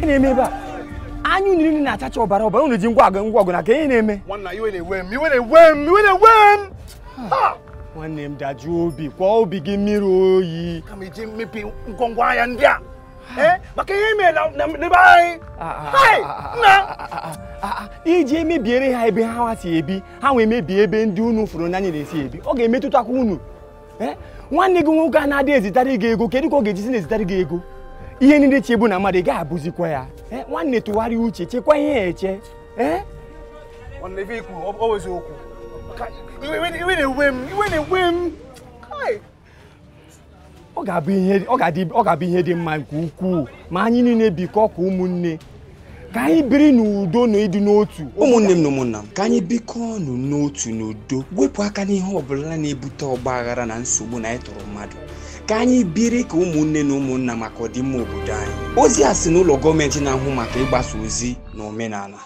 ihe na-eme ebe a anya unu niile na-achacha ọbara ọbara unu ji ngwa agụ ngwa ọgụ na ka ihe na-eme nwanne m dajụ obi kwa obi gị mmiri oyi ahịa ndị a eh, maka ihe anyị iji emebiere ha ebe ha si ebi ha wee mebie ebe ndị unu fụrụ n'anya na-esi ebi ọ ga-emetụtakwa unu eh, nwanne gị nwoke a na-adị ezitara gị ego kedu ka ọ ga-ejisi na-ezitara gị ego ihe niile chegbu na mmadụ ị gaghị abụzikwa ya nwanne tụgharịa uche chekwa ihe ya eche ọ ga-abụ ihe dị mma nke ukwuu ma anyị niile bikọ ka ụmụnne ka anyị biri n'udo na ịdị n'otu ụmụnne m na ụmụnna m ka anyị bikọ ọnụ n'otu n'udo wepụ aka n'ihe ọbụla na-ebute ọgba aghara na nsogbu na anyị tụrụ mmadụ ka anyị biri ka ụmụnne na ụmụnna maka ọdịmma obodo anyị ozi a si n'ụlọ gọọmenti na-ahụ maka ịgbasa ozi na omenala